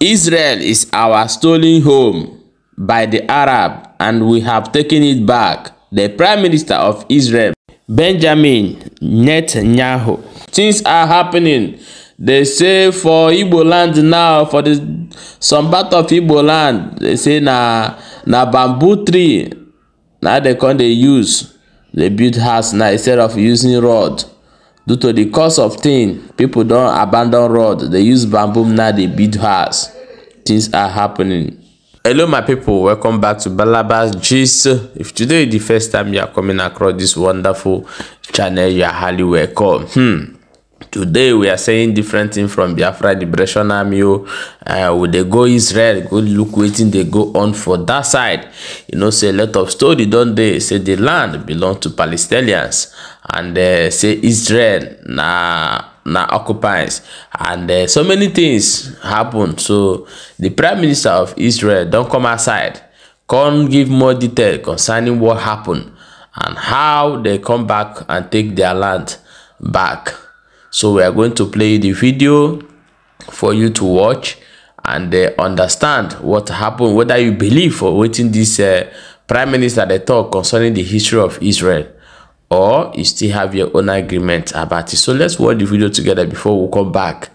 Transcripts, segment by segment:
Israel is our stolen home by the Arab and we have taken it back, the Prime Minister of Israel, Benjamin Netanyahu. Things are happening. They say for Igbo land now, for the, some part of Igbo land, they say na, na bamboo tree, Now they can they use. They build house now instead of using rod due to the cost of thing people don abandon rod dey use bamboo now dey build house things are happening. hello my people welcome back to balabas gist if today is the first time you are coming across this wonderful channel you are highly welcome. Hmm today we are saying different thing from biafra liberation army o oh. uh, we dey go israel go look wetin dey go on for that side you know say a lot of story don dey say the land belong to palestinians and uh, say israel na na occupies and uh, so many things happen so the prime minister of israel don come outside come give more detail concerning what happen and how they come back and take their land back so we are going to play the video for you to watch and uh, understand what happened whether you believe or wetin this uh, prime minister dey talk concerning the history of israel or you still have your own agreement about it so let's watch the video together before we come back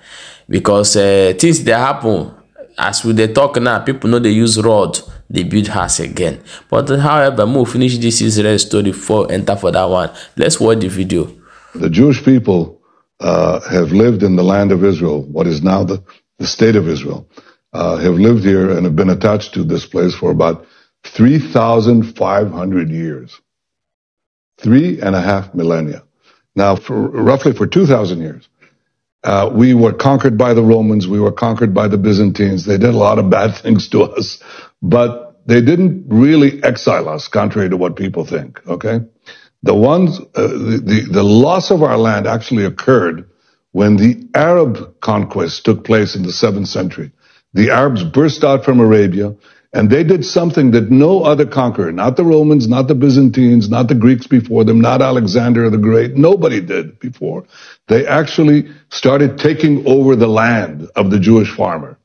because uh, things that happen as we dey talk now people know they use rod they build house again but however make finish this israel story before enter for that one let's watch the video. the jewish people uh, have lived in the land of Israel, what is now the, the state of Israel, uh, have lived here and have been attached to this place for about 3,500 years. Three and a half millennia. Now, for, roughly for 2,000 years, uh, we were conquered by the Romans. We were conquered by the Byzantines. They did a lot of bad things to us, but they didn't really exile us, contrary to what people think. Okay. The ones, uh, the, the, the loss of our land actually occurred when the Arab conquest took place in the seventh century. The Arabs burst out from Arabia and they did something that no other conqueror, not the Romans, not the Byzantines, not the Greeks before them, not Alexander the Great, nobody did before. They actually started taking over the land of the Jewish farmer.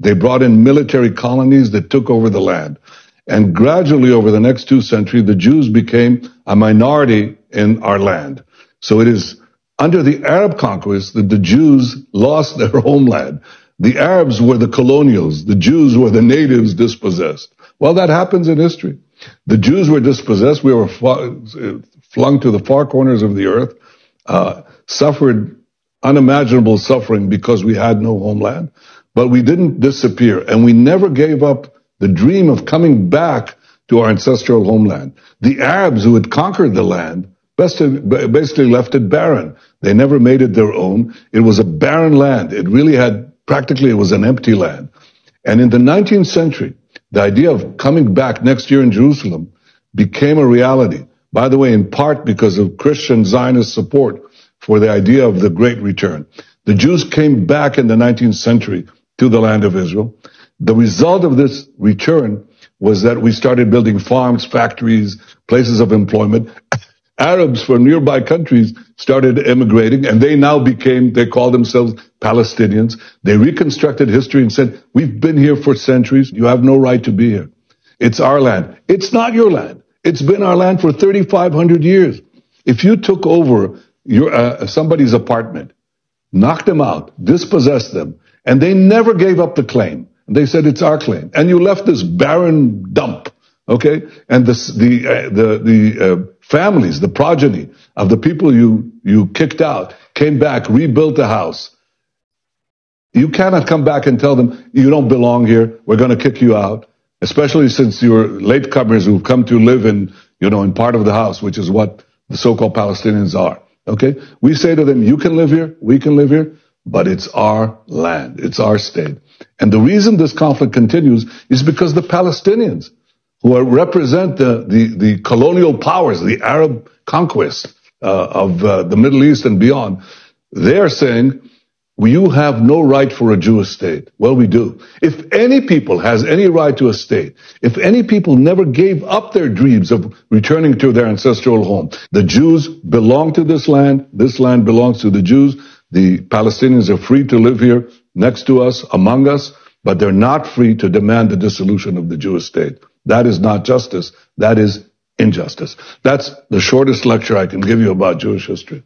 They brought in military colonies that took over the land. And gradually over the next two centuries, the Jews became a minority in our land. So it is under the Arab conquest that the Jews lost their homeland. The Arabs were the colonials. The Jews were the natives dispossessed. Well, that happens in history. The Jews were dispossessed. We were flung to the far corners of the earth, uh, suffered unimaginable suffering because we had no homeland, but we didn't disappear and we never gave up the dream of coming back to our ancestral homeland. The Arabs who had conquered the land basically left it barren. They never made it their own. It was a barren land. It really had practically it was an empty land. And in the 19th century, the idea of coming back next year in Jerusalem became a reality. By the way, in part because of Christian Zionist support for the idea of the Great Return. The Jews came back in the 19th century to the land of Israel. The result of this return was that we started building farms, factories, places of employment. Arabs from nearby countries started immigrating and they now became, they call themselves Palestinians. They reconstructed history and said, we've been here for centuries. You have no right to be here. It's our land. It's not your land. It's been our land for 3,500 years. If you took over your, uh, somebody's apartment, knocked them out, dispossessed them, and they never gave up the claim, they said, it's our claim. And you left this barren dump, okay? And this, the, uh, the, the uh, families, the progeny of the people you, you kicked out came back, rebuilt the house. You cannot come back and tell them, you don't belong here. We're going to kick you out, especially since you're latecomers who've come to live in, you know, in part of the house, which is what the so-called Palestinians are. Okay? We say to them, you can live here, we can live here, but it's our land. It's our state. And the reason this conflict continues is because the Palestinians, who are, represent the, the, the, colonial powers, the Arab conquest uh, of uh, the Middle East and beyond, they're saying, well, you have no right for a Jewish state. Well, we do. If any people has any right to a state, if any people never gave up their dreams of returning to their ancestral home, the Jews belong to this land. This land belongs to the Jews. The Palestinians are free to live here next to us, among us, but they're not free to demand the dissolution of the Jewish state. That is not justice. That is injustice. That's the shortest lecture I can give you about Jewish history.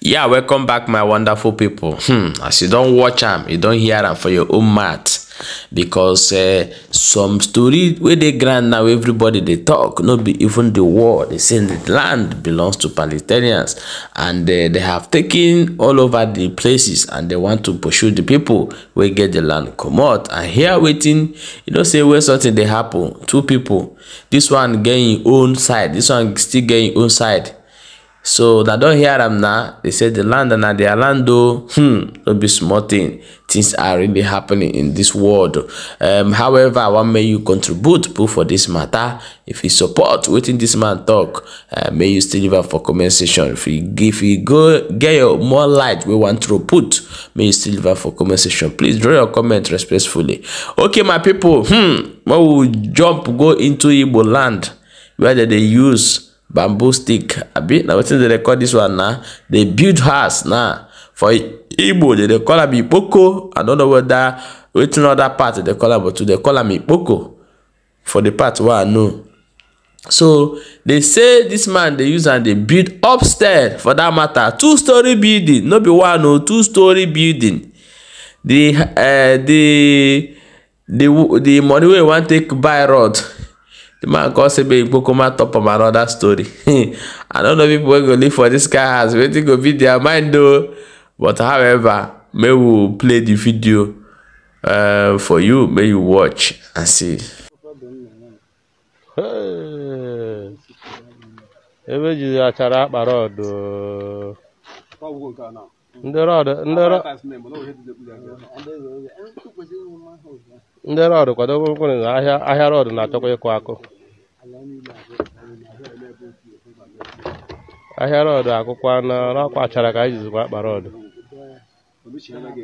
Yeah, welcome back, my wonderful people. Hmm, as you don't watch them, you don't hear them for your own math. because eh, some story wey dey ground now everybody dey talk no be even the war they say the land belongs to palestinians and eh, they have taken all over the places and they want to pursue the people wey get the land comot and here wetin you know say wey something dey happen two people this one get im own side this one still get im own side so na don hear am na they say the land na dia land o hmm no be small thing things are really happening in this world um, however i wan make you contribute put for this matter if you support within this man talk uh, may you still live for comment section if you if you go get your more light We want throw put may you still live for comment section please draw your comment respectfully okay my people hmm We will jump go into igbo land where they use bamboo stick abi Now, wetin dem dey record this one na they build house now. Nah for igbo they dey call am ikpoko i don't know whether which another part they call am but we call am ikpoko for the part wey i know so they say this man they use and they build upstairs for that matter two story building not be one o oh, two story building the uh, the the the money we want take buy road. the man come say make ikpoko top of another story i don't know people wey go live for this guy has waiting to be their mind though. but however may we play the video uh, for you may you watch and see ebe ji achara akpa rọd oh. ndị rọdụ kwado mkpụrụ na ahịa rọdụ na-achọkwa ịkụ akụ ahịa rọdụ akwụkwọ na ọkwa achara ka anyị jizikwa akpa rọd echi anaghị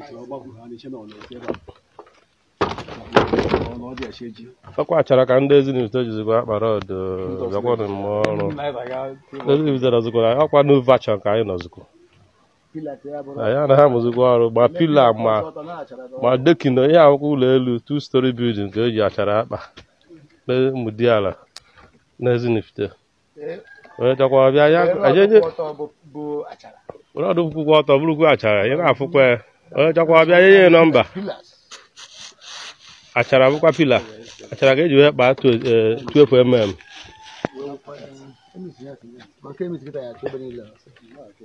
ka ndị ezinụlọ jizikwa akpara ọdụ bịakwanụ ọrụ ezinụlọ na ọkwa nu vachon ka anyị ya na ha ọrụ ma pila ma ma dekino ihe akwụkwọ ụlọ elu two story building ka eji achara akpa na ala na ezinụlọ were ọdụ kwụkwọ ọtọ bụrụkwa achara ị na-afụkwa ya onye chọkwa bịa nye ya nọmba achara bụkwa pila achara ga eji wee kpaa tuefu mm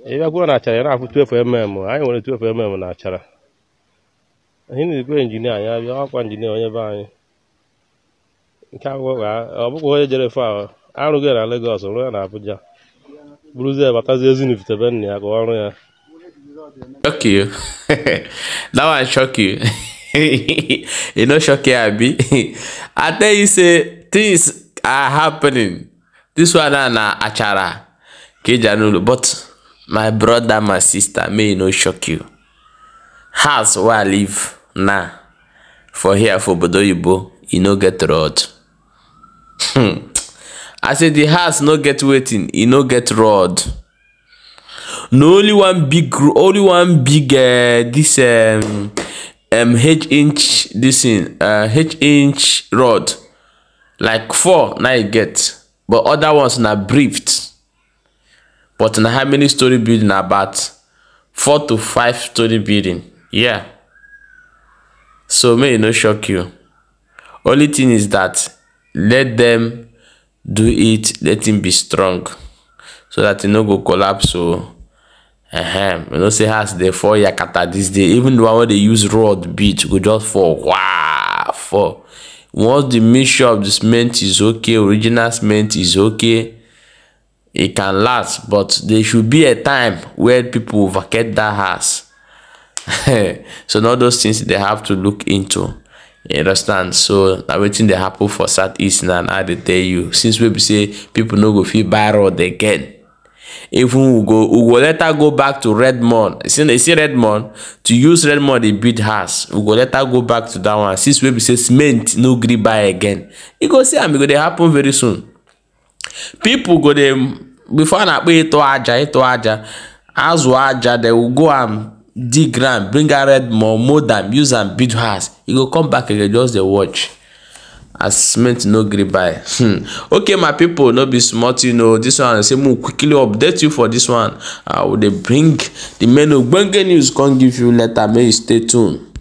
ị bịakwuo na achara ya na-afụ tuefu mm anyị nwere tuefu mm na achara anyị na-ekwe injinia anyị abịa ọkwa injinia onye be anyị nke akwụkwọ ọ bụkwa onye jere fụ ahụ arụghị na Legọs rụọ ya na Abuja bụrụzie abatazi ezinivitebe nna ya gụọ ọrụ ya shock that one shock you e no shock you abi i tell you say things are happening this one na na achara ka eji but my brother my sister may e no shock you house wey i live now for here for obodo oyibo e no get road hmm. i say di house no get wetin e no get rod na only one big only one big uh, this um, um, h inch this thing uh, h inch rod like four na e get but other ones na briefed but na how many story building about four to five story building yeah so may e no shock you only thing is that let them do it let him be strong so that he no go collapse o oh. ehem you know say house dey fall yakata dis day even the one wey dey use rod beat go just fall waa fall once the mixture of the cement is okay original cement is okay e can last but there should be a time where people vacate that house so all those things they have to look into you understand so na wetin dey happen for southeast and i dey tell you since we say people no go feel buy road again even we go we go let her go back to redmond you see, you see redmond to use redmond they build house we go let her go back to that one since we say cement no gree buy again you go see I'm e go dey happen very soon people go them before na kpe e to aja e to aja azụ aja they will go and dig ground bring out red more mold am use am build house e go come back again just dey watch as cement no gree buy hmm. okay my people no be small thing o oh. this one say make we quickly update you for this one i uh, will dey bring the main ogbonge news come give you later May you stay tuned.